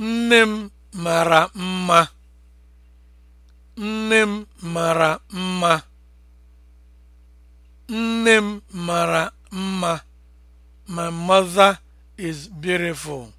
Nne m mara mma. Nne m mara mma. Nne m mara mma. My mother is beautiful.